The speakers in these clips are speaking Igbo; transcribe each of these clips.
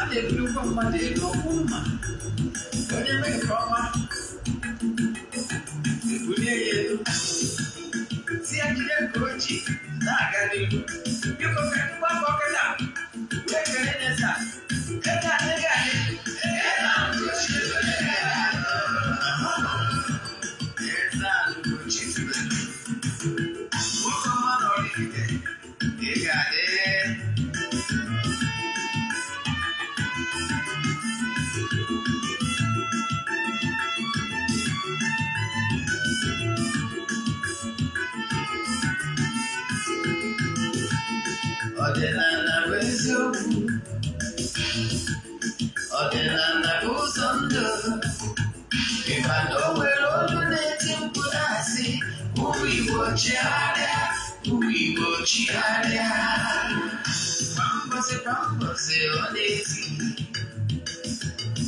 a na-ebuli ụgwọ mmadụ elu okwu mma onye mee nke ọma ebulie ya elu si jide nke ojii na-aga n'ihu biko ka ndị gbakọ Purigociare, purigociare Pambase, pambase, odesi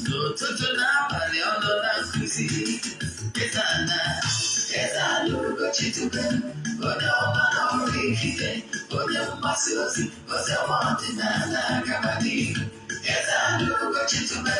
Tututu na pale ono na squeezy Kesana, kesa lurugo chitupe Ona omana orikite Ona umasiosi, ose omante na na kabati Kesa lurugo chitupe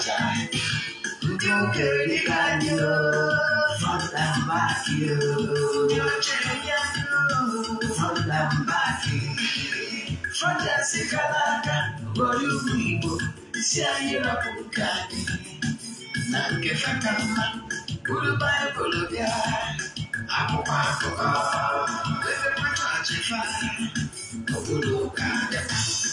cha Don't get it on you Fall down back you Don't change you Fall down back you Fantastic alaka Royal Weibo Siyayira kukani Nange fatama Ulubaya kulubya Akwụkwọ akụkọ Ebe mmadụ achịfa Obodo ụka adịkwa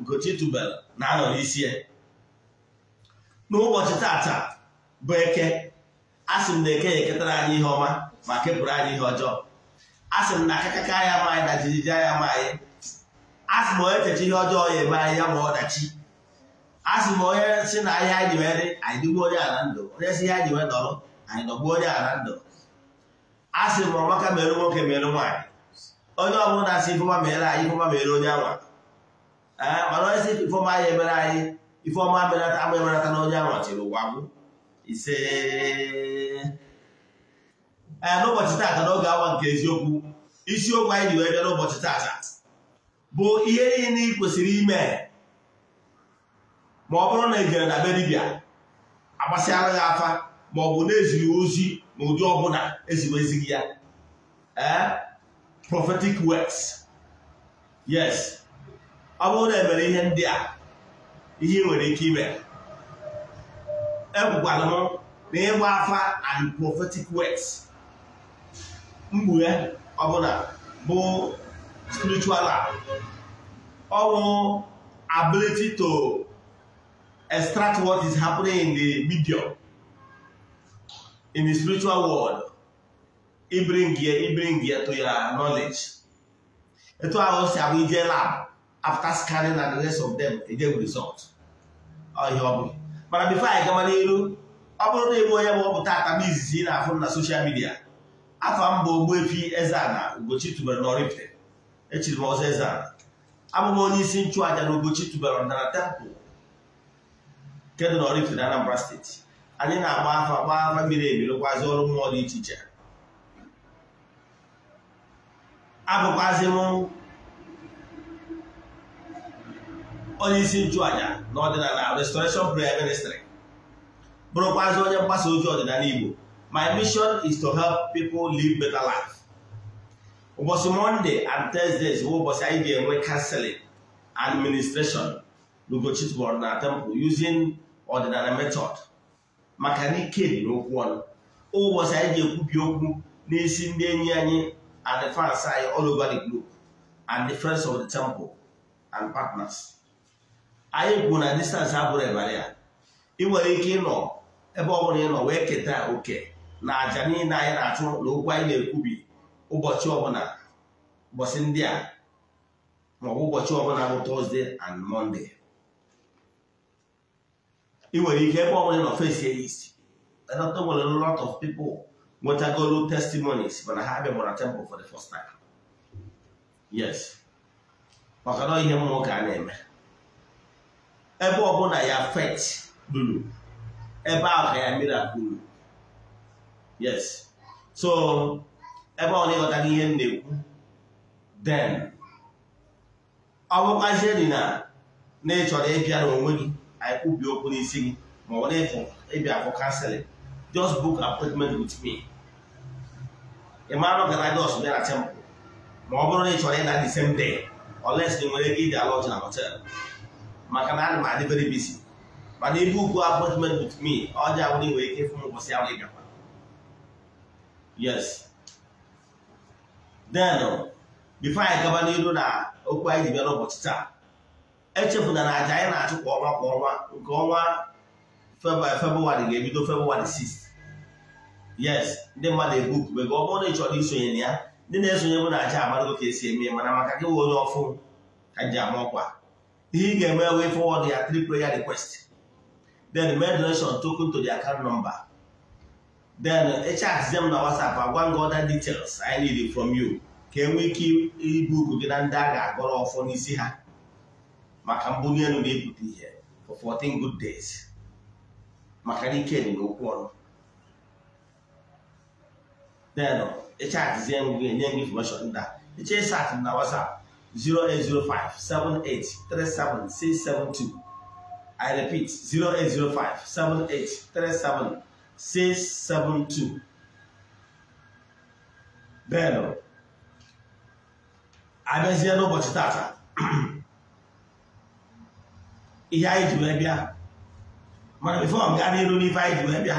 Ugochi na-anọ n'isi ya n'ụbọchị tata bụ eke asị m na eke ya eketara anyị ihe ọma ma kepụrụ anyị ihe ọjọọ asị m na akakaka ya ma na jijiji ya ma anyị asị m onye cheche ihe ọjọọ ya eme anyị ya ma ọdachi asị m onye si na ahịa anyị nwere anyị dịgbuo onye ala ndụ onye si ihe anyị nwere dọrọ anyị dọgbuo onye ala ndụ asị m ọmaka mere nwoke mere nwaanyị onye ọbụla na-asị ifeọma mere anyị ifeọma mere onye anwa Eh, mana onye si ifeọma ya emere anyị ife ọma benata agba ebenata na onye anwachiri ụwa m ise n'ụbọchị taata n'oge awa nke eziokwu isiokwu anyị ji bịa n'ụbọchị taata bụ ihe niile ị kwesịrị ime ma ọ bụrụ na ị jere na be dibịa agbasịara ya afa ma ọ bụ na-eziri ozi na ụdị e ọbụla eziwezighị ya ee eh, prophetic words yes ọ bụrụ na emere ihe ndị a ihe nwere ike ime ekwukwala m na ịgba afa and prophetic words mkpughe ọbụla bụ spiritual ọ bụ ability to extract what is happening in the medium in the spiritual world ibring ya to your knowledge etu ahụ si abụ ije lab after scanning na the rest of them they result ihe ọ bụghị mana before anyị gama n'elu ọ bụrụ na ebe onye bụ ọ tata m izizi ị na-afụ na social midia afọ mba Ogbuefi Eze-Ana Ugochi tubelu na echiri m ọzọ Eze-Ana onye isi nchụaja na Ugochi tubere ọdịnala temple nke dị na Oraifite na Anambra steeti anyị na-agba afa gba afa mmiri emirikwazi ọrụ mmụọ dị iche iche abụkwazi m onye isi nchụàjà n'ọdịnala restoration prayer ministry bụrụkwazị onye mgbasa ozi ọdịnala Igbo my mission is to help people live better life. ụbọchị Monday and Thursdays bụ ụbọchị anyị ga-enwe counseling administration ministration na temple using ọdịnala method maka na ike dị n'okwu ọnụ ụbọchị anyị ga-ekwubi okwu n'isi ndị enyi anyị and the fans anyị all over the globe and the friends of the temple and partners anyị kwu na distansị abụrụ ịbara ya ị nwere ike ịnọ ebe ọ bụla ị nọ wee keta oke na aja niile anyị na-achụ na okwu anyị na-ekwubi ụbọchị ọbụla ụbọchị ndị a maọbụ ụbọchị ọbụla bụ tọzdee and mọnde ị nwere ike ebe ọbụla nọ fesi ya isi dọta nwere lot of people nwetagolu testimonies mana ha bịabara temple for the first time yes maka na ihe mmụọ ka a na-eme ebe ọ ọbụla ya fet lụrụ ebe ahụ ka ya mmiri lụrụ yes so ebe ọ na-ịghọtaghị ihe m na-ekwu den ọ bụkwazie dị na na ị chọrọ ịbịa n'onwe gị anyị kwubi okwu n'isi gị ma ọ na-efu ịbịa for counseling just book appointment with me ị mara ka Lagos bịa temple ma ọ bụrụ na ị chọrọ ịda the same day unless ị nwere ike ịdị ala ọcha na hotel maka na ana m adị very busy mana ibe ugwu appointment with me ọjọọ awụrụ nwere ike ịfụ m ụbọchị ahụ ịgakwa. yes then bifo anyị gaba n'iru na okwu anyị ji bịa n'ụbọchị taa echefuna na aja anyị na-achụ kwa ọnwa kwa ọnwa nke ọnwa febrụwarị ga-ebido febụwarị 6 yes ndị mmadụ egbupụbego ọ bụrụ na ị chọrọ isonye na ya ndị na-esonye bụ na aja amarago ka esi eme mana maka gị wụ onye ọfụ ka ji ama ọkwa ihe ga-eme wee forward ya three prayer request then make donation token to the account number then echaz them na whatsapp agwa gị other details I need from you ka enwee ike ibu ibuku gị na ndị a ga-agọrọ ọfọ n'isi ha maka mbunye elu na-ebute ihe for 14 good days maka na ike dị n'okwu ọnụ then echaz nye gị information ndị a eche sat na whatsapp 0805 78 37 672. I repeat 0805 78 37 672. n'ụbọchị tata. Ihe anyị ji wee bịa. Mana bifo m gaa n'iru n'ife anyị ji wee bịa.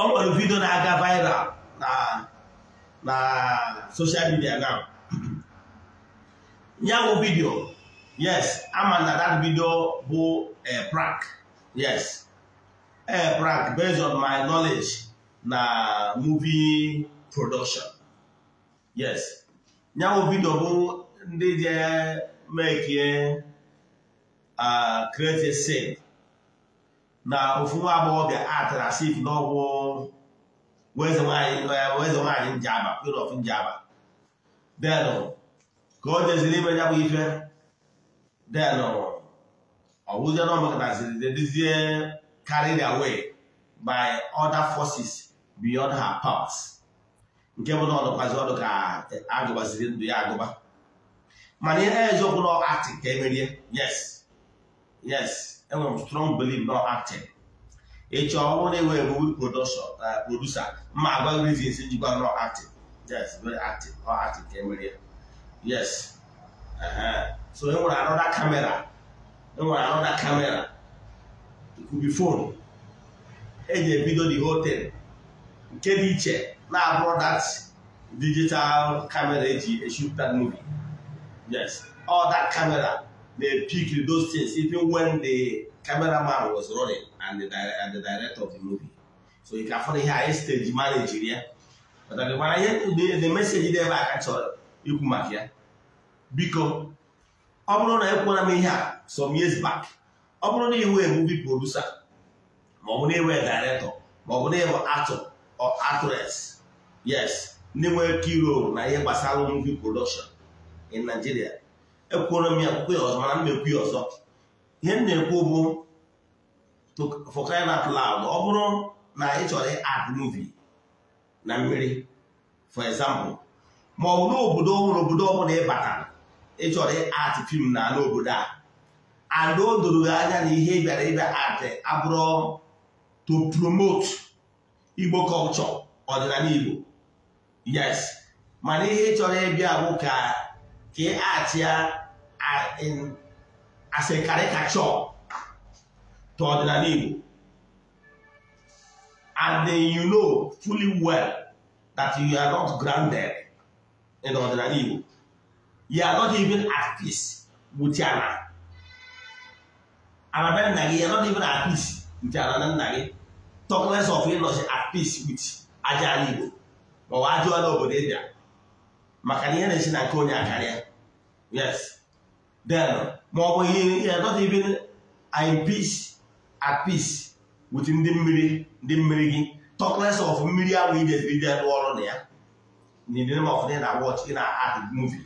Ọ nwere vidio na-aga viral na na social media now. Nyawo vidio yes ama na that video bụ a eh, prank yes a eh, prank based on my knowledge na movie production yes nyawo vidio bụ ndị je mekie create scene na ofu agbọghọbịa atara njaba ka o jeziri ime ya bụ ife den ọwụzie na ziri dizie carried away by other forces beyond her powers nke bụ na ọdụkwazi ọdụ ka agụbaziri ndụ ya agụba mana ihe eziokwu na acting ka emerie yes yes enwere m strong belief na acting ịchọ ọrụ na enwere movie eh, producer ma agwa reasons njikwa na acting yes very acting ọ acting ka emerie yes so e nwere another camera e nwere another camera it could be phone eji ebido the whole thing nke dị iche na-abụrụ that digital camera eji shoot that movie yes all that camera peak pick those things even when the cameraman was running and the, and the director of the movie so you can find here anyị stage manager ya but the message dị ebe a ka ikwu maka ya biko ọ bụrụ na ekwuola m ihe a some years back ọ bụrụ na iwe movie producer bụ na iwe director ma ọ bụ na ịbụ actor or actress yes ndị nwere key role na ihe gbasara movie production in Nigeria ekwuola m ya kwuo ya ọzọ mana m na-ekwu ya ọzọ ihe m na-ekwu bụ for crying out loud ọ bụrụ na ị chọrọ act movie na mmiri for example ma ọ bụ n'obodo ọhụrụ obodo ọbụla ịbata ịchọrọ art film na ala obodo a and o doro anya na ihe bịara ịbịa art abụrụ to promote Igbo culture ọdịnala Igbo yes mana ihe ịchọrọ ịbịa bụ ka ka at ya as a caricature to ọdịnala Igbo and you know fully well that you are not grounded in ọdịnala Igbo you are not even at peace with ya na arabe nna gị you are not even at peace with ya na nna gị talk less of ịnọchi at peace with aja ala Igbo ma ọ ajụ ala obodo ịbịa maka na ihe na-esi na nke onye akarịa yes then ma ọ ihe you are not even in peace at peace with ndị mmiri ndị mmiri gị talk less of mmiri ahụ ị ga-ebiri bịa rụọ ọrụ na ya in the name na watch ị na-act movie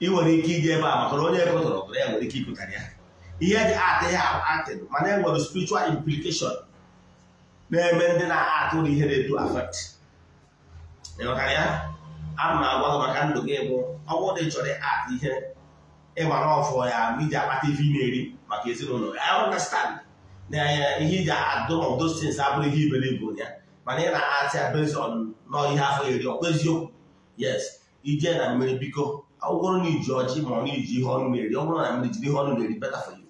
ị nwere ike iji ebe a maka na onye ekpụtara ọbụla ya nwere ike ịpụtara ya ihe eji atị ya atịd mana e nwere spiritual implication na-eme ndị na-atụ ụlọ ihe na-edu affect ịghọtara ya a m agwa ha maka ndụ gị bụ ọgwụ dị chọrọ atụ ihe ịgbara ọfọ ya iji akpata ivi na-eri maka ezinụlọ ya understand na ihe iji adụ of those things abụrụ ihe iberibu ya mana ị na-atị ya based nọ ihe afọ iri ọkwa eziokwu yes ije na mmiri biko ọgwụgwọrụ na iji ọjị ma ọ na-eji ihe ọnụ na-eri ọ bụrụ na mmiri jiri ihe ọnụ na-eri beta for you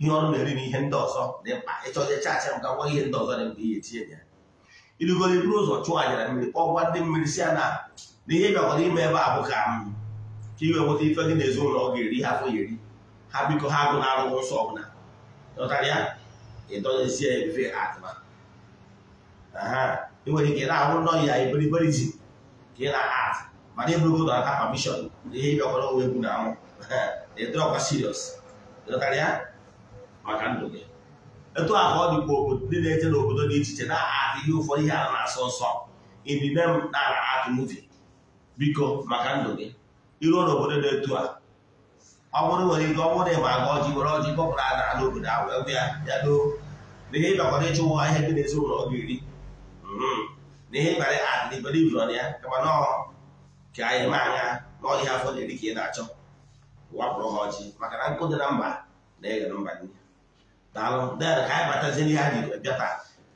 ihe ọnụ na-eri na ihe ndị ọzọ dị mkpa ịchọje chaachị ga ngwa ihe ndị ọzọ dị mkpa ihe etinye ya irugoro iburu ụzọ chụọ anyara mmiri kpọgwa ndị mmiri si ya na na ihe bịakwara ime ebe a bụ ka m ka iwe nweta ife dị na ụlọ ọ ga-eri ha afọ eri ha biko ha agụ na arụghị nsọ ọbụla ịdọnyezie efe atụma nwere ike na-arụ ụlọ ya iberiberi ji ka ị na-at mana ịbụrụgodo aka pamishọn na ihe ịbịakwara onwe egwu na anwụ ịdọrọkwa siriọs dọtara ya maka ndụ gị etu a ka ọ dịkwa obodo ndị na-eje n'obodo dị iche iche na-atụ ihe ụfọdụ ihe a na-asọ nsọ inine m na-ara atụ muvi biko maka ndụ gị iruo n'obodo na-etu a ọ bụrụ nwere ike ọ bụrụ ịma aga ọjị were ọjị a obodo ahụ ya ya doo na dị n'ezinụlọ ọ ga na ihe mkparị na ka anyị anya na afọ na-eri na-achọ ji maka na nkụ dị na mba na mba na dịrị ka anyị anyị bịata.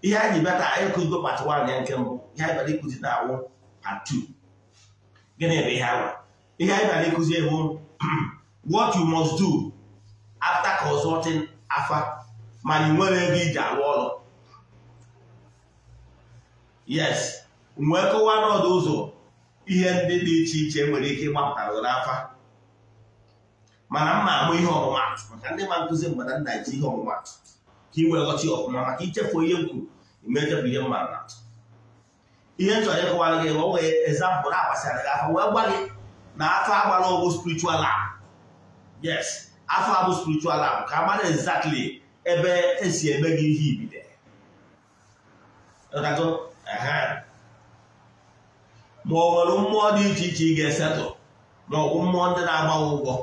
ihe anyị bịa anyị kụzigo pati wan ya nke ihe anyị what you must do after consulting afa ma iji arụ ọrụ yes wee e kọwaa n'ọdụ ụzọ ihe ndị dị iche iche nwere ike ịgbapụtara n'afa mana mma amụ ihe ọmụmatụ maka ndị ma nkụzi mgbe na nna ji ihe ọmụmatụ ka ị were ghọta ọfụma maka ichefu onye m kwuru imechefu ihe mma na ihe m chọrọ ịkọwara gị o nwere ezampụl agbasara gị afọ wee gwa gị na afọ agbara ọgwụ spirichual lab yes afọ abụ spirichual lab ka a mara ebe esi eme gị ihe ibide ma ọ nwere mmụọ dị iche iche ị ga-esetụ ma ọ bụ mmụọ ndị na-agbawa ụgwọ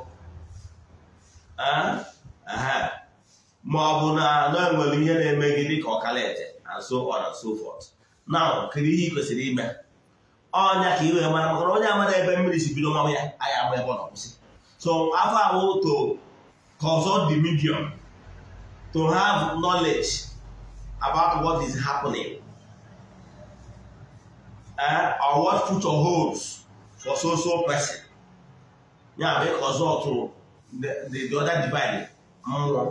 ma ọ bụ na anọ nwere ihe na-eme gị dịka ọkalaete na nso ọ na nso fọt na kedu ihe ị kwesịrị ime ọnya ka ị wee mara maka onye amara ebe mmiri si bido mmanwụ ya anyị ama ebe ọ na-akwụsị so afọ ahụ to cause the medium to have knowledge about what is happening eh or what future holds for so so person ya bụ ịka ọzọ ọtụrụ the other divide mmụọ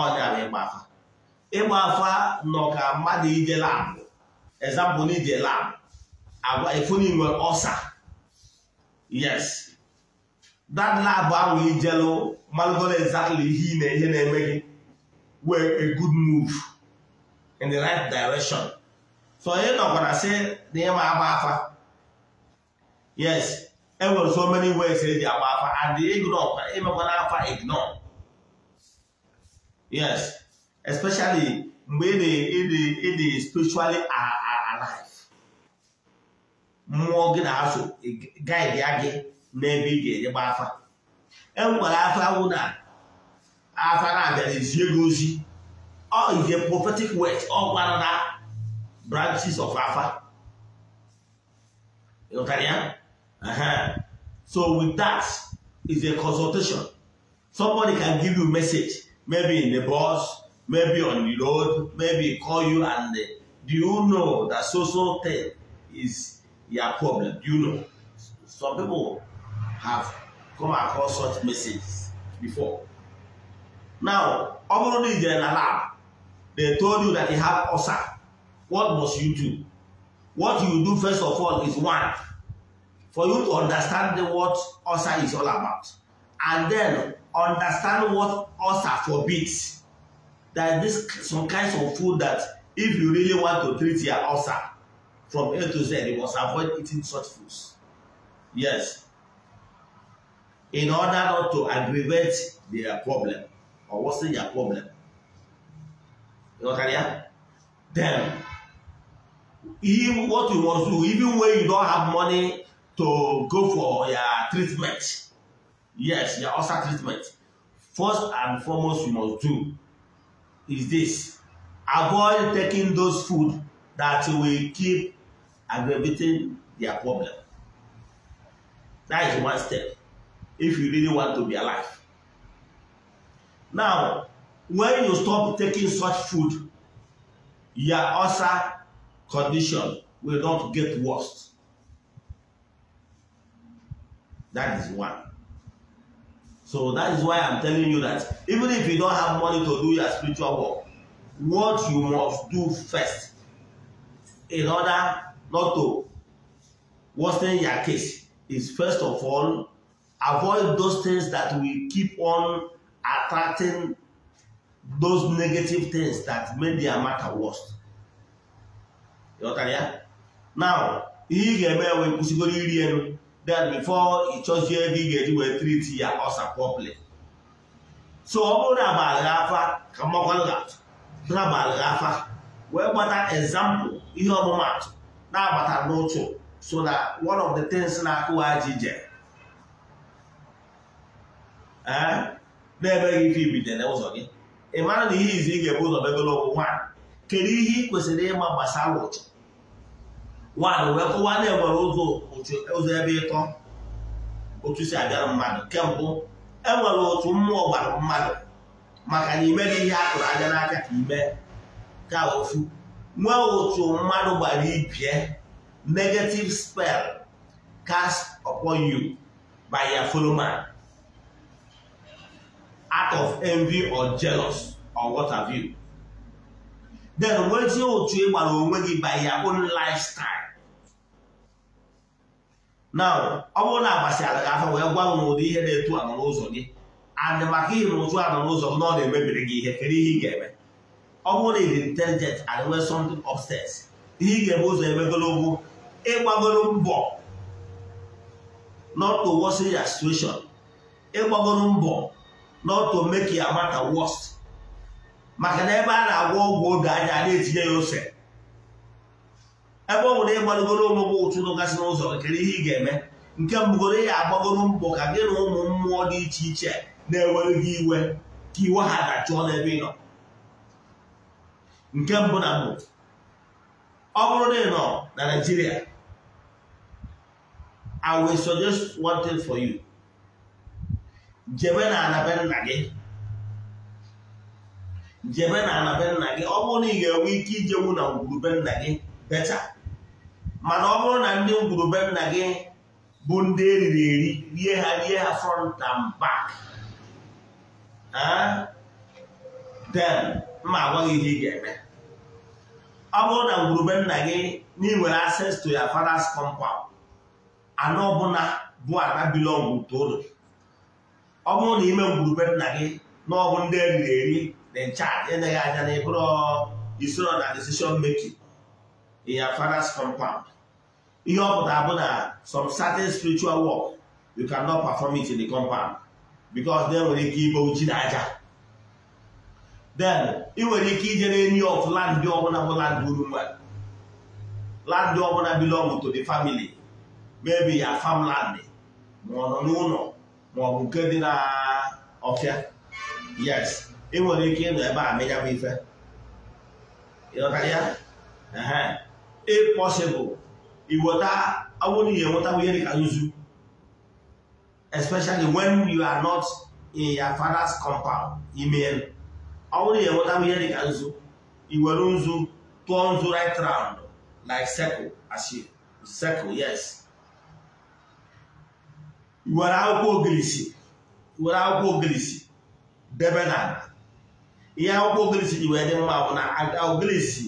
ọ ya bụ ịgba afa ịgba afa nọ ka mmadụ ije labụ example n'ije labụ agwa efuni nwere ọsa yes that lab ahụ ijelụ e malụgoro exactly ihe ị na ihe na-eme gị were a good move in the right direction so onye nọkwara sị say ịma agba afa yes enwere so many ways eji agba afa and ignore imekwana afa ignore yes especially mgbe ị dị spiritually alive mmụọ gị na guy guide ya gị n'ebe ị ga-eje gba afa enwekwara afa na afa na-abịa ezie ozi ọ ije prophetic word ọ oh, gwara branches of afa ịghọtara ya uh-huh. so with that is a consultation somebody can give you a message maybe in the bus maybe on the road maybe call you and uh, do you know that so so thing is your problem do you know some people have come across such messages before now ọ bụrụ na ijere they told you that you have ulcer What must you do? What you do first of all is one, for you to understand what ulcer is all about. And then understand what ulcer forbids. That this some kinds of food that if you really want to treat your ulcer from A to Z, you must avoid eating such foods. Yes. In order not to aggravate their problem or worsen their problem. You know what I mean? Then even what you must do, even when you don't have money to go for your treatment. Yes, your ulcer treatment. First and foremost you must do is this. Avoid taking those food that will keep aggravating their problem. That is one step if you really want to be alive. Now, when you stop taking such food, your ulcer condition will not get worse. That is one. So that is why I'm telling you that even if you don't have money to do your spiritual work, what you must do first in order not to worsen your case is first of all, avoid those things that will keep on attracting those negative things that make their matter worse. ghọtara ya now ihe ị ga-eme wee kwụsịgoro iri elu then before ị chọzie ebe ị ga-eji wee triti ya ọsa properly so ọ bụrụ na abalị afa ka mmakwallat na abalị afa wee gbata ezampụl ihe ọmụmatụ na-agbata n'ụchụ so na one of the things na-akụwa ji je eh? na-emeghị ife ibidere ụzọ gị ị mara na ihe izi ị ga-ebu ụzọ megolo onwe nwaanyị kedu ihe ị kwesịrị ịma gbasara ụchụ nwaanyị wee kọwa na enwere ụzọ ebe ịtọ otu si abịara mmadụ kemgbe enwere otu mmụọ gbara mmadụ maka na ime gị ihe akụrụ anya n'aka ka ime ka ofu nwee otu mmadụ gbara ibie negative spell cast upon you by your fellow man out of envy or jealous or what have you then nwezie otu ị gbara onwe gị by your own lifestyle na ọ bụrụ na agbasịara afọ wee gwa m n'ụdị ihe na-etu anọ n'ụzọ gị andị maka ihe na ụtụ anọ n'ụzọ gị na ọ na-emebiri gị ihe kedu ihe ị ga-eme ọ bụrụ na ị dị intelligent and nwee something ihe ị ga-eme ụzọ emegologo ịgbagoro mbọ not to worsen your situation ịgbagoro mbọ not to make your matter worse maka na ebe a na-agwọ ọgwụ oge anya a na-etinye ya ose ebe ọ bụ na ịgbalụgoro omụgbụ ụtụ gasị n'ụzọ kere ihe ị ga-eme nke mbụgoro ya agbagoro mbọ ka gị na ụmụ mmụọ dị iche iche na-ewere gị iwe ka iwe ha dachụọ n'ebe ị nọ nke mbụ na mbụ ọ bụrụ na ị nọ na Naịjirịa I will suggest one thing for you jebe na anabe nna gị jebe na anabe nna gị ọ bụrụ na ị ga-enwe ike ijenwu na ngwurube nna gị becha mana ọ bụrụ na ndị ngwurube nna gị bụ ndị eriri eri rie ha rie ha front and back ah? then mma agwaghị ihe ị ga-eme ọ bụrụ na ngwurube nna gị na inwere access to your father's compound anọ ọbụla bụ ana bilọngụ to ọ bụrụ na ime ngwurube nna gị na ọ bụ ndị eriri eri na nchaji eneghị anya na ịbụrụ isoro na decision making in ya father's compound ihe ọ pụtara bụ na some certain spiritual work you cannot perform it in the compound because then nwere ike ibe uji na then ị nwere ike ijere n'enyi of land ọbụla bụ land Urumba land ọbụla belong to the family maybe ya farmland ma ọ nọ n'ụlọ ma ọ bụ nke dị na ọfịa yes ị nwere ike ịnọ ebe a menyabụ ife ya if possible iweta awoni enwetawo ihe dịka nzu especially when you are not in your father's compound email awoni enwetawo ihe dịka nzu iwere ụzụ turn nzu right round like circle as circle yes iwere akwụkwọ ogirisi iwere akwụkwọ ogirisi debe na ihe akwụkwọ ogirisi ji wee dị mma bụ na ogirisi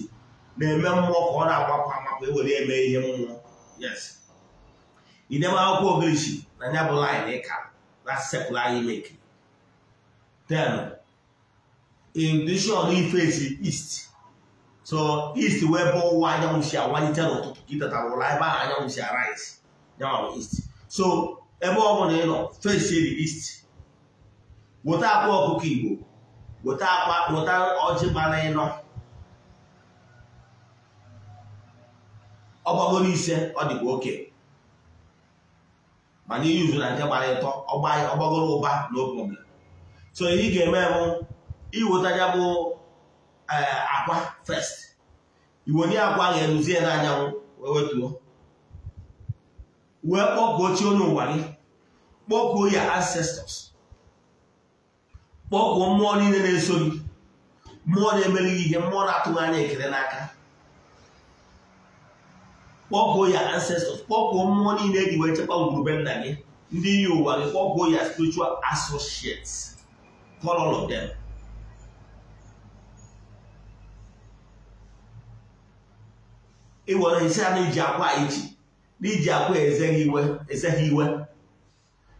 na-eme mmụọ ka ọ na-agbapụ ama ọkụ ewere eme ihe mmụọ yes idebe akwụkwọ ogirishi na ya bụ laịn ịka na sepụl anyị meki ten in dishon ifesi east so east wee bụ ụwa anyanwụ si awanite n'ụtụtụ gị tetara ụlọ ebe ahụ anyanwụ si arise nyanwụ east so ebe ọ bụla ị nọ fesi the east weta akwa ọkụkọ igbo weta akwa weta ọjị gbara ịnọ ọ gbagoro ise ọ dịkwa oke mana iyuzu na nke gbara ịtọ ọgbagoro ụba na problem so ihe ị ga-eme bụ iweta ya bụ eh, akwa iwu iwenye akwa ga-eruzie n'anyanwụ wee wee kpọpụ chi onye ụwa gị kpọkuo ya ancestors kpọkuo mmụọ niile na-eso gị mmụọ na-emeli gị ihe mmụọ na-atụghị anya ekele n'aka kpọpụ ya ancestors kpọpụ mmụọ niile eji wee chekwa ngwurube nna gị ndị iyi ụwa gị kpọpụ ya spiritual associates call all of them ị nwere isi a na-iji akwa iji n'iji akwa ezeghị iwe iwe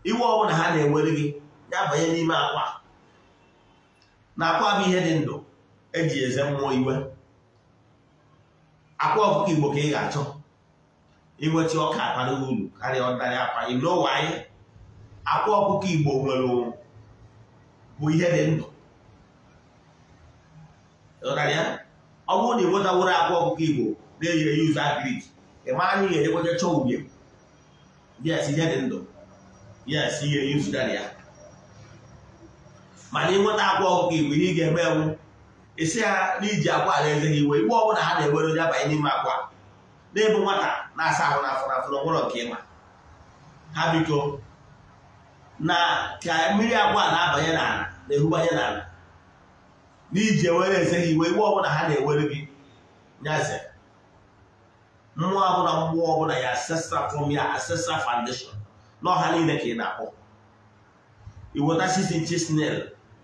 iwe ọbụla ha na-ewere gị ya banye n'ime akwa na akwa bụ ihe dị ndụ eji eze mmụọ iwe akwa ọkụkọ igbo ka ị ga-achọ inweta ọka abara uru karịa ọdarị akwa n'ụwa anyị akwa ọkụkọ igbo nwere bụ ihe dị ndụ ọ bụrụ na ịnwetaworo akwa ọkụkọ igbo na-eyi eyi ụzọ agrik ịma anyị ga-enyekwacha chọọ ubi yes ihe dị ndụ yes ihe eyi ụzụdara ya mana ịnweta akwa ọkụkọ igbo ihe ị ga-eme ewu isi ha iji akwa ala eze gị iwe igbe ọ ha na-ewere onye abanye n'ime akwa na-ebu nwata na-asa ahụ n'afọ n'afọ n'ọgwụrọ nke ịma ha biko na ka mmiri agwa na-abanye n'ala na-erubanye n'ala n'iji ewere eze ha iwe iwe ọbụla ha na-ewere gị nyaze mmụọ ọbụla mmụọ ọbụla ya asesra from ya ancestral na n'ọha niile ka ị na-akpọ iweta sisi chisnel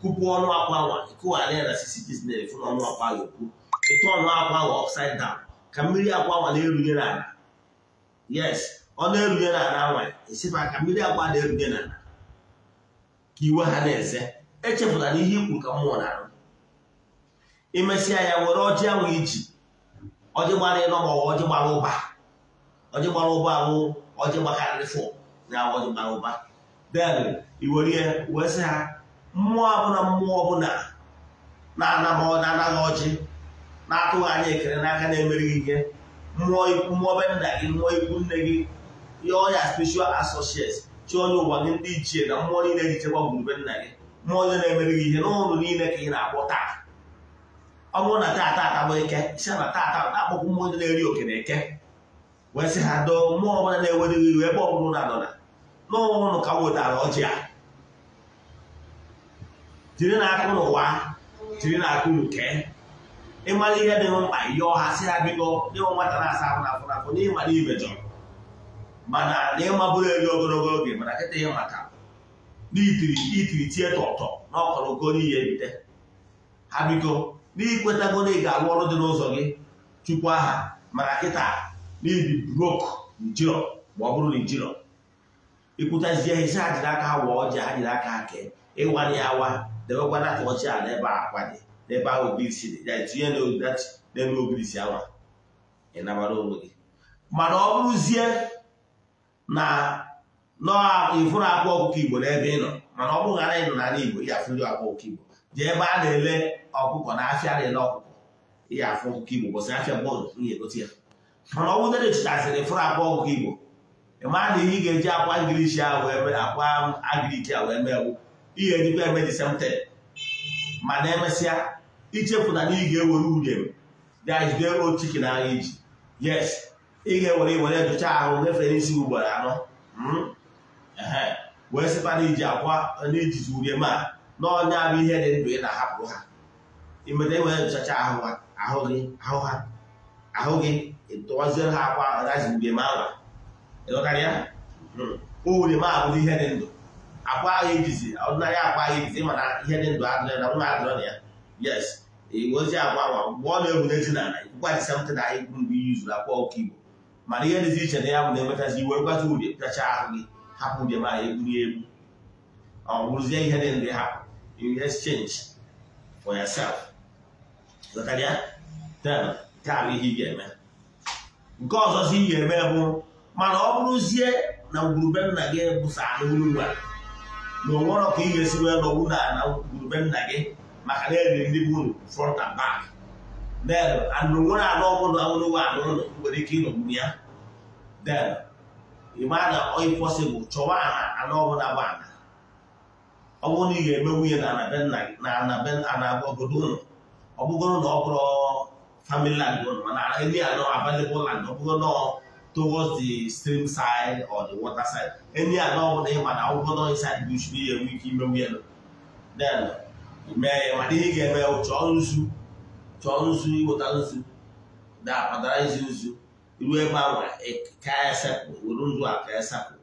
kupu ọnụ akwa nwa ịkụghara ya na sisi chisnel fụ na ọnụ akwa ya okwu ịtụ ọnụ akwa nwa upside down ka mmiri agwa nwa na-erunye yes ọ na-erunye n'ala nwa esifa ka mmiri agwa na-erunye n'ala ka iwe ha na-eze echepụta na ihe ikwu ka mmụọ na-arụ imesịa ya were ọjị ahụ iji ọjị gbara ịnọ ma ọjị gbara ụba ọjị gbara ụba ahụ ọjị gbakarịrịfụ na ọjị gbara ụba den iwerie wee sị ha mmụọ ọbụla mmụọ ọbụla na-anaghị ọjị na-atụghị anya ekele n'aka na-emerighị ihe mmụọ mmụọ be nna gị mmụọ ikwu nne gị ihe ọnya special associates chi onye ụwa gị ndị ichie na mmụọ niile ji chekwa gburube nna gị mmụọ onye na-emerighị ihe n'ụlọ niile ka ị na-akpọ taa ọ bụrụ na taata atabụ eke si na taata akpọkwụ mmụọ onye na-eri oke na eke wee sị ha doo mmụọ ọbụla na-ewerighị iwe ebe bụrụ na adọna na ụnụ ka wetara ọjị a jiri na ụnụ jiri na akụ ụnụ kee ịmara ihe dị mkpa yọọ ha sị ha biko dịwa nwata na-asa afọ afọ afọ n'ịmara ibe chọrọ mana na ịmabụrụ ogologo oge mana kịta ya maka n'itiri itiri tie tọtọ na ọkọrọgo n'ihe bite ha biko n'ikwetago na ị ga-alụ ọrụ dị n'ụzọ gị chukwu aha mana kịta n'ibi brok njirọ ma ọ bụrụ na njirọ ikwutazie ihe si ha jiri aka ha wụọ ji ha jiri aka ha ịwa ịwanye ya awa debekwana atọchi ala ebe a akwa dị n'ebe ahụ obi isi dị ya tinye n'ebe obi isi anwa ị nabara onwe gị mana ọ bụrụzie na ịfụrụ akwa ọkụkọ igbo n'ebe ị nọ mana ọ bụrụ ghara ịnọ n'ala igbo ya afụ ndị akwa ọkụkọ igbo jee ebe a na-ele ọkụkọ na afịa dị na ọkụkọ ya afụ ọkụkọ igbo bọsị afịa bọọlụ ihe egote ya mana ọ bụdere chụtasịrị ịfụrụ akwa ọkụkọ igbo ị maa na ihe ị ga-eji akwa ngilishi akwa agiriki a wee mee wu ihe ejikwa eme disemte ma na emesịa ichefụta na ị ga-ewere ude dajide iji yes ga-ewere ahụ isi ugboro anọ hmm? wee iji akwa na bụ ihe dị ndụ ị na-ahapụ ha ahụ gị ahụ gị tụwaziere ha akwa ma ya hmm. ma abụrụ ndụ akwa ya yes ozi agwa mgbe ọ na-ewuneji n'ala ikwukwadịsa na anyị bụrụ mgbe iyi zuru akwa ọkụ igbo mana ihe dịzi iche na ya bụ na-enwetazi iwe gwazi uri pịacha ahụ gị hapụ ụdị ma egburu egbu ọ bụrụzie ihe dị ndị ha you exchange for yourself zụtara nke a bụ ihe ị ga-eme nke ọzọzi ị ga-eme bụ mana ọ bụrụzie na ngwurube nna gị bụsa anụ uru nwa na onwerọ ka ị ga-esi wee nọgbu na na nna gị maka na eri ndị bụ unu front and back then anụ nwere anụ ọbụla ọbụla anụ na nwere ike ịnọgbu ya then ịma na oyi pọsịbụl chọwa anụ ọbụla bụ ana ọ bụrụ na ị ga-eme nwunye na anabogodo ụlọ ọ bụgoro na ọ bụrụ family land ụlọ mana anọ land ọ bụgo towards the anọ na ike then mee ya ma ihe ị ga-eme ya chọọ nzu chọọ nzu ịwụta nzu dapatara nzu nzu ruo ebe ahụ e, ka esepụ were nzu a ka esepụ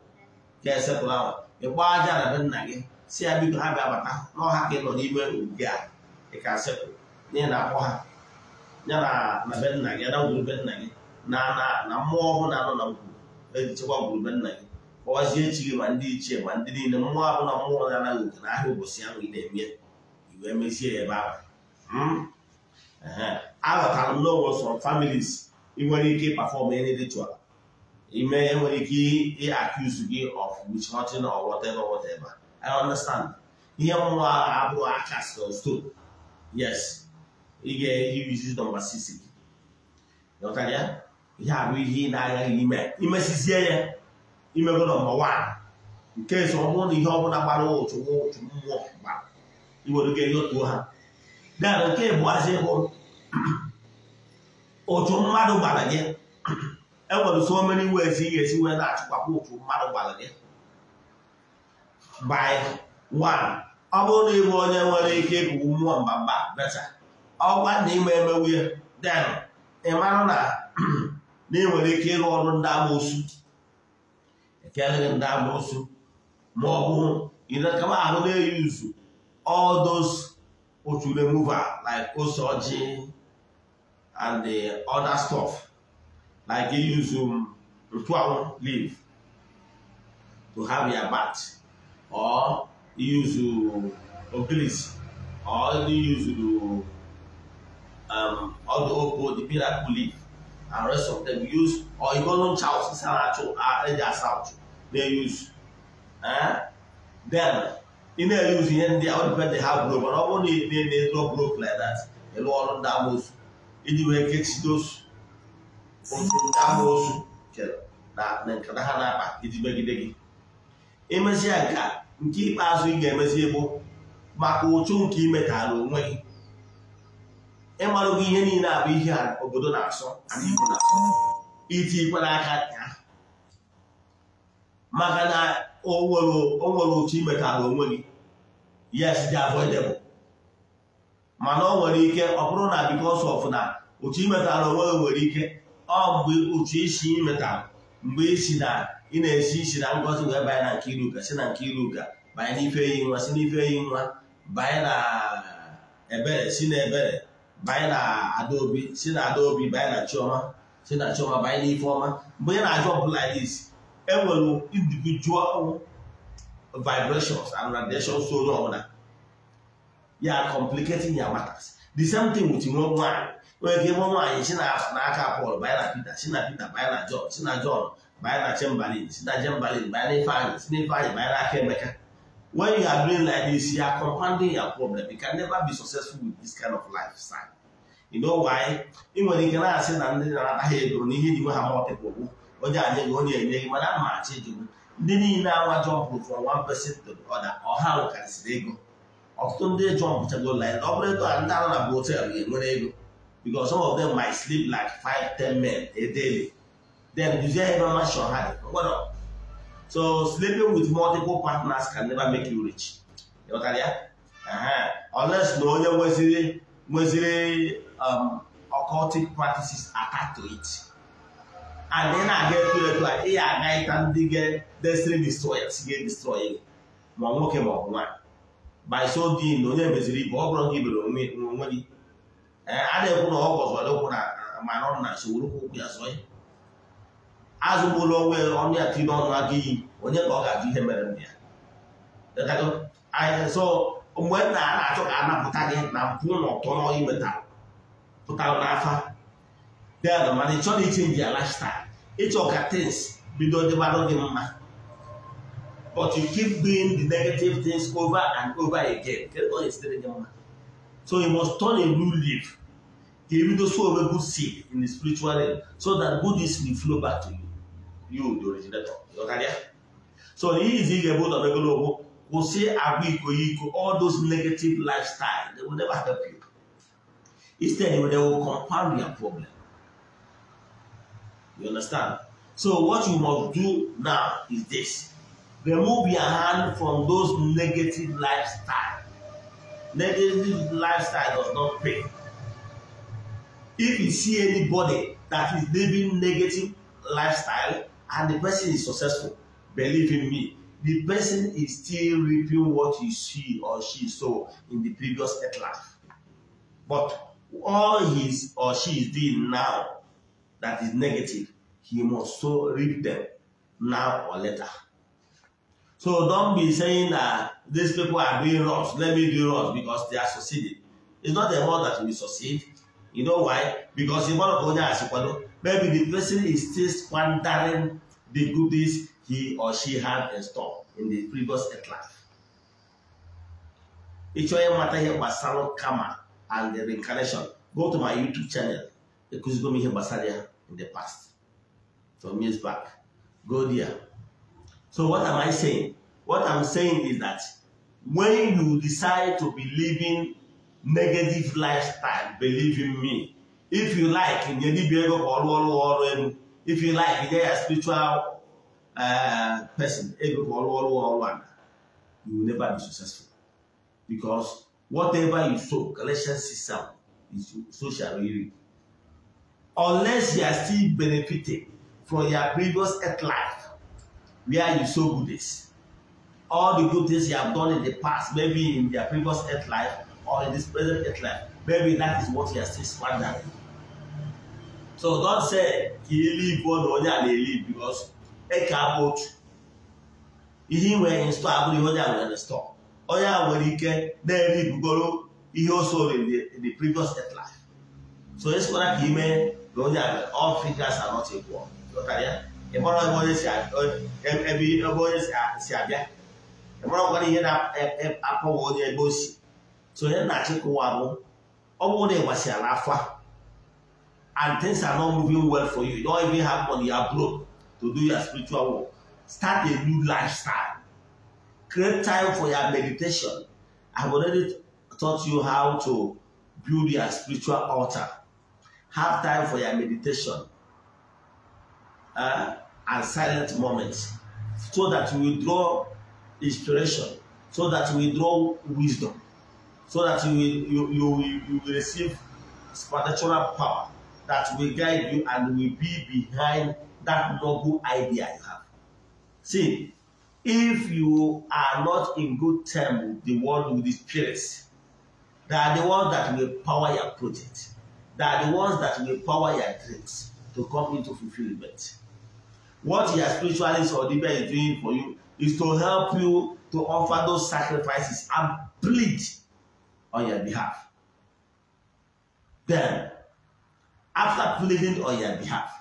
ka esepụ ahụ ịgba aja na be nna gị si ya biko ha bịa bata n'ọha ka ị nọ n'ime ubi a ịka ka sepụ n'ihi na akpọ ha ya na be nna gị na ngwurube nna gị na na mmụọ na anọ na ngwuru ejichekwa ngwurube nna gị kpọwazie echi gị ma ndị ichie ma ndị niile mmụọ na mmụọ na-anaghị oke na ahịa ụbọchị ahụ ị na-eme wee mechie ya ebe ahụ hmm? aghọtara m n'onwe sọrọ families ị nwere ike ịpafọm ritual ime enwere ike ịakụzu gị of which nothing or whatever whatever I understand ihe mmụọ abụrụ akas na stone yes ị ga-eyuzi nọmba 6 gị ihe abụ ihe ị na-agaghị ime imesizie ya imego nọmba 1 nke so ọ bụrụ na ihe ọbụla gbara ụtụ mmụọ gba iwere oge egotuo ha dara oke bụazi bụ otu mmadụ gbara gị enwere so mere ways ị ga-esi wee na-achịkwapụ otu mmadụ gbara gị by one ọ bụrụ na ịbụ onye nwere ike ịgụgụ mmụọ mba beta ọkwa na ime emewe den ị mara na na ị nwere ike ịrụ ọrụ ndị amoosu ekelere ndị amoosu ma ọ ahụ na-eyi uzu all those Ochu remover like Osoji and the other stuff. Like you use um, Ritual leaf to have your bath or you use um, Oglis or you use um, all the Oko, the miracle leaf and rest of them use or even on Charles Saracho, uh, Areja South, they use. Eh? Then ị na-eyuzu ihe ndị ọdịbedị ha bụrụ mana ọ bụrụ na ị na-eme ezigbo brok like ịlụ ọrụ ndị amoosu iji wee kechide osu ndị amoosu na nkata ha na-akpa iji megide gị imezie nka nke ikpeazụ ị ga-emezi bụ maka ụchụ nke imetara onwe gị ịmarụgo ihe niile abụ ihe obodo na-asọ itikwa n'aka ya maka na o nwere otu imeta imetara onwe gị yes dị avoidable mana o nwere ike ọ bụrụ na because of na otu imetara onwe gị nwere ike ọ mgbe otu isi imeta mgbe isi na ị na-esi isi na ngozi wee banye na nke iruka si na nke iruka banye n'ife eyi nwa si n'ife eyi nwa banye na ebere si na ebere banye na adaobi si na adaobi banye na chioma si na chioma banye n'ife ọma mgbe ị na-ajụ ọbụla isi enwere individual vibrations and radiations so onye ọbụla ya complicating ya matters the same thing with nwe nwere onye ga ịmụ nwaanyị si n'aka Paul banye na Peter si na Peter banye na John si na banye na si na Chamberlain banye Ifeanyị si na Ifeanyị banye n'aka Emeka when you are doing like this you are compounding your problem you can never be successful with this kind of lifestyle you know why ị nwere ike na-asị na ndị na-anaghị ego n'ihe dị nwe ha mọtịpụ onye a nye onye enye gị mana ama achị gị ndị niile awa jọmpụ from one person to the other ọha nwekarịsịrị ego ọtụtụ ndị jọmpụchago line ọ bụrụ ego a ndị anọ na bụ hotelụ ga-enwere ego because some of them might sleep like five ten men a daily then duzie ebe mashon ha dị ngwado so sleeping with multiple partners can never make you rich ịghọtara ya ọles na onye nweziri nweziri um, occultic practices attached to and ị na-aga etu etu a ị ya aga ịta ndị ga-destiny destroyers ga-edestroy gị ma nwoke ma ọ bụ nwaanyị by so doing na onye meziri ibe ọ bụrụ gị ibere onwe gị a na-ekwu na ọ gọzọrọ ụkwụ na mana ọ na nsogbu ụkwụ ya zọ ya azụgbula ya ọnụ ya tiri n'ọnụ aka iyi onye ka ọ ga-ajụ ihe mere nna ya so mgbe nna a na-achọ ka a napụta gị na mpụ na ọtọ na ọyị wetara pụtara n'afa dad mana ị chọrọ ichenji ya lifestyle ịchọ ka things bido dịbarụ gị mma but you keep doing the negative things over and over again kedu gị mma so you must turn a new leaf ka ebido so onwe good seed in the spiritual realm so that goodness will flow back to you you the originator so n'ihi izi ị ga-ebu ụzọ n'ogologo kwụsị agwa iko iko all those negative lifestyle they will never help you You understand? So what you must do now is this. Remove your hand from those negative lifestyle. Negative lifestyle does not pay. If you see anybody that is living negative lifestyle and the person is successful, believe in me, the person is still reaping what he she or she saw in the previous life. But all he or she is doing now that is negative, he must so read them now or later. So don't be saying that these people are doing wrongs, let me do wrongs because they are succeeding. It's not the one that will succeed. You know why? Because in one of as Onya maybe the person is still squandering the goodies he or she had in store in the previous life. Ịchọ ịmata ihe gbasara karma and the reincarnation, go to my YouTube channel, ekuzigo m ihe gbasara ya. in the past. Some years back. Go there. So what am I saying? What I'm saying is that when you decide to be living negative lifestyle, believe in me, if you like, in if you like, you're a spiritual uh, person, eh, you will never be successful. Because whatever you sow, Galatians 6 is so shall you reap. unless you are still benefiting from your previous earth life where you sow goodies all the good things you have done in the past maybe in your previous earth life or in this present earth life maybe that is what you are still squandering so don say ka ị live on onye a na-elive because eke abụ otu ihe ị nwere in store abụghị onye a nwere in store ike na-eri bugoro ihe o soro in the previous earth life so esora ka ị mee na onye all figures are not equal ị mara ebe onye si abịa ị mara gwara ihe na-apụghị onye ebe o si so onye na-achị kụwa bụ ọ bụrụ na ị gbasịara afọ and things are not moving well for you you don't even have money you are broke to do your spiritual work start a new lifestyle create time for your meditation i've already taught you how to build your spiritual altar Have time for your meditation uh, and silent moments so that you will draw inspiration, so that you will draw wisdom, so that you will, you, you, you will receive spiritual power that will guide you and will be behind that noble idea you have. See, if you are not in good term with the world, with the spirits, they are the ones that will power your project they are the ones that will power your dreams to come into fulfilment. What your spiritualist or deeper is doing for you is to help you to offer those sacrifices and plead on your behalf. Then, after pleading on your behalf,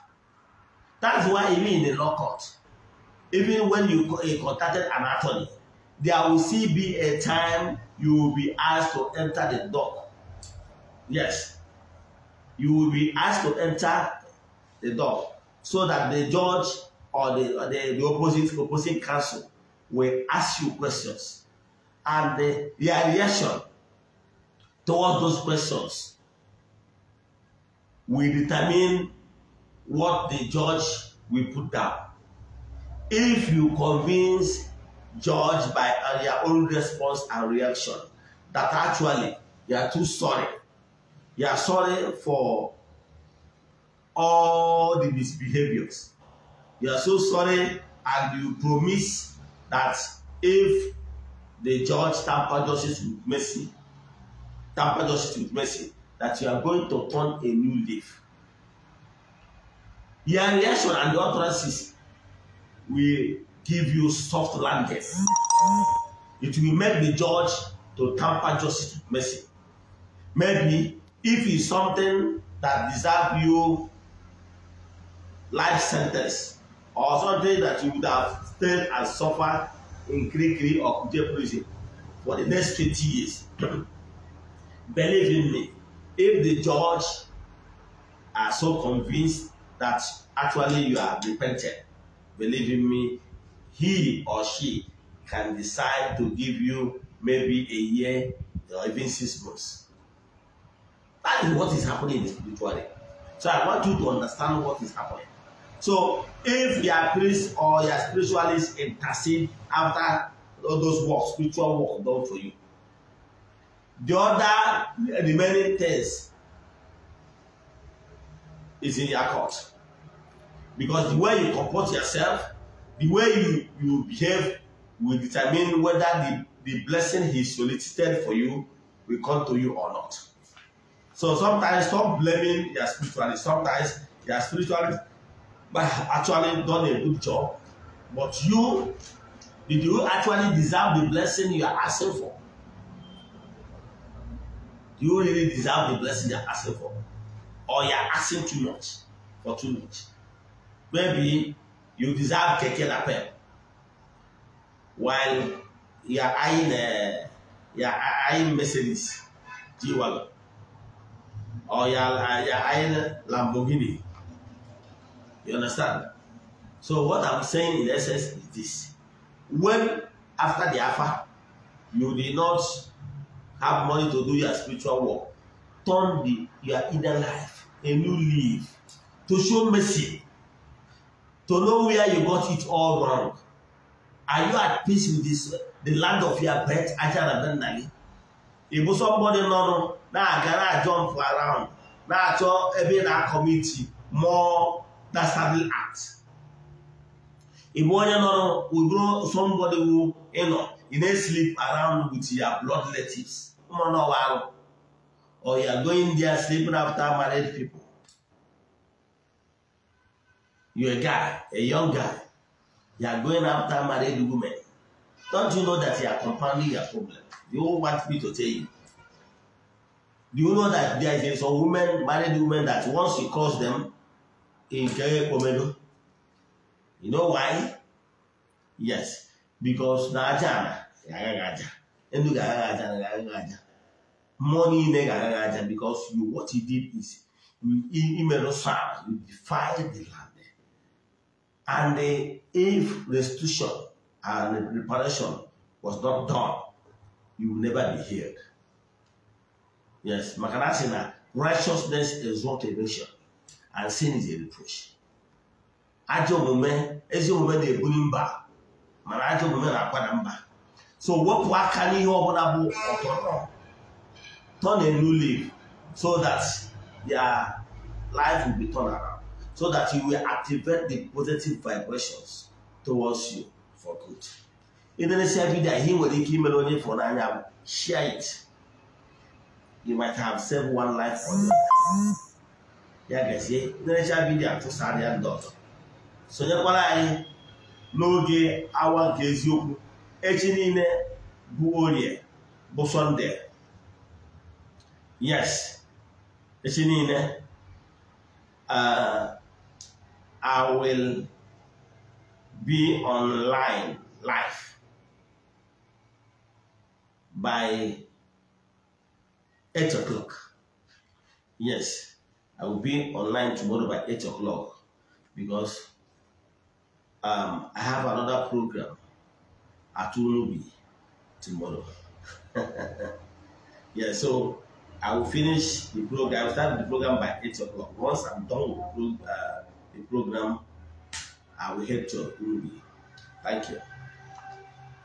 that's why even in the law court, even when you contacted an attorney, there will still be a time you will be asked to enter the dock. Yes, you will be asked to enter the door so that the judge or the, or the, the opposite opposing counsel will ask you questions and the, their reaction towards those questions will determine what the judge will put down. If you convince judge by your uh, own response and reaction that actually you are too sorry You are sorry for all the misbehaviors. You are so sorry and you promise that if the judge tamper justice with mercy, tamper justice with mercy, that you are going to turn a new leaf. Your reaction and your utterances will give you soft landing. It will make the judge to tamper justice with mercy. Maybe if it's something that deserves you life sentence or something that you would have stayed and suffered in Kirikiri or Kuje prison for the next 20 years. Believe in me, if the judge are so convinced that actually you have repented, believe in me, he or she can decide to give you maybe a year or even six months. That is what is happening in the So I want you to understand what is happening. So if your priest or your spiritualist intercede after all those works, spiritual work done for you, the other remaining things is in your court. Because the way you comport yourself, the way you, you behave will determine whether the, the blessing he solicited for you will come to you or not. So sometimes stop blaming your spirituality. Sometimes your spirituality actually done a good job, but you did you actually deserve the blessing you are asking for? Do you really deserve the blessing you are asking for? Or you are asking too much for too much? Maybe you deserve keke lapel while you are eyeing, uh, you are eyeing Mercedes G-Wagon. or oh, your, your iron Lamborghini. You understand? So what I'm saying in essence is this. When after the alpha, you did not have money to do your spiritual work, turn the, your inner life, a new leaf, to show mercy, to know where you got it all wrong. Are you at peace with this, the land of your birth, Ajahn Nali? ịbụ somebody nọrụ na-aga na jump around na-achọ ebe na-akọmiti more dastardly act ịbụ onye nọrụ ụbụrụ somebody wụ ịnọ ị na-eslip around with ya blood relatives ụmụnọwa alụ or you are going there sleeping after married people you a guy a young guy you are going after married women Don't you know that you are compounding your problem? You want me to tell you. Do you know that there is a woman, married woman, that once you cross them in Komedo? You know why? Yes, because na aja aja, endu aja aja, money na aja because you what he did is you you defy the land, and if restitution and reparation was not done, you will never be healed. Yes, maka righteousness is not a nation and sin is a reproach. Ajọ omume ezi omume na-ebuli mba mana ajọ omume so what can you turn a new leaf so that your life will be turned around so that you will activate the positive vibrations towards you. for good ịderesia vidio ihe nwere ike imere onye fọrọ n'anya bụ share it you might have saved one life for you ya gazie ịderesia vidio atụsara ya ndị ọzọ sonyekwara anyị n'oge awa nke eziokwu echi niile bụ orie bụ sọnde yes echi niile uh, I will be online live by eight o'clock. Yes, I will be online tomorrow by eight o'clock because um, I have another program at Unubi tomorrow. yeah, so I will finish the program. I will start the program by eight o'clock. Once I'm done with the uh, program, I will help to approve it. Thank you.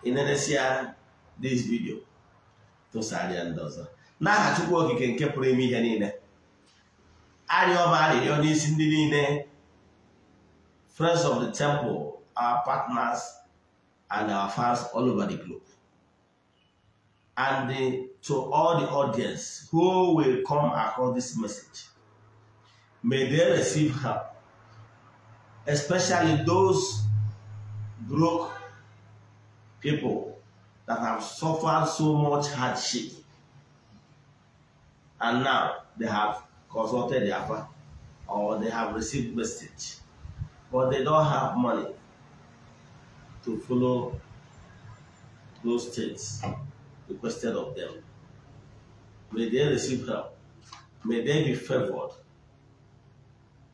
In Indonesia, this video to Sadi and Dosa. N'aha Chukwu Okike nke pụrụ ime ihe niile. Arịọ ọba arịrịọ ndị niile. Friends of the temple, our partners and our fans all over the globe. And the, to all the audience who will come across this message, may they receive help especially those broke people that have suffered so much hardship and now they have consulted father or they have received message but they don't have money to follow those things requested of them. May they receive help. May they be favored.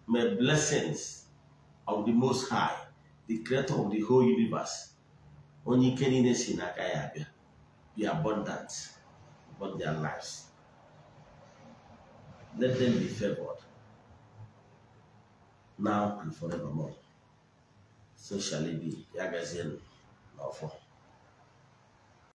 May blessings of the Most High, the creator of the whole universe. Only in Sinakayabia be abundant upon their lives. Let them be favored now and forevermore. So shall it be. Yagazin, lawful.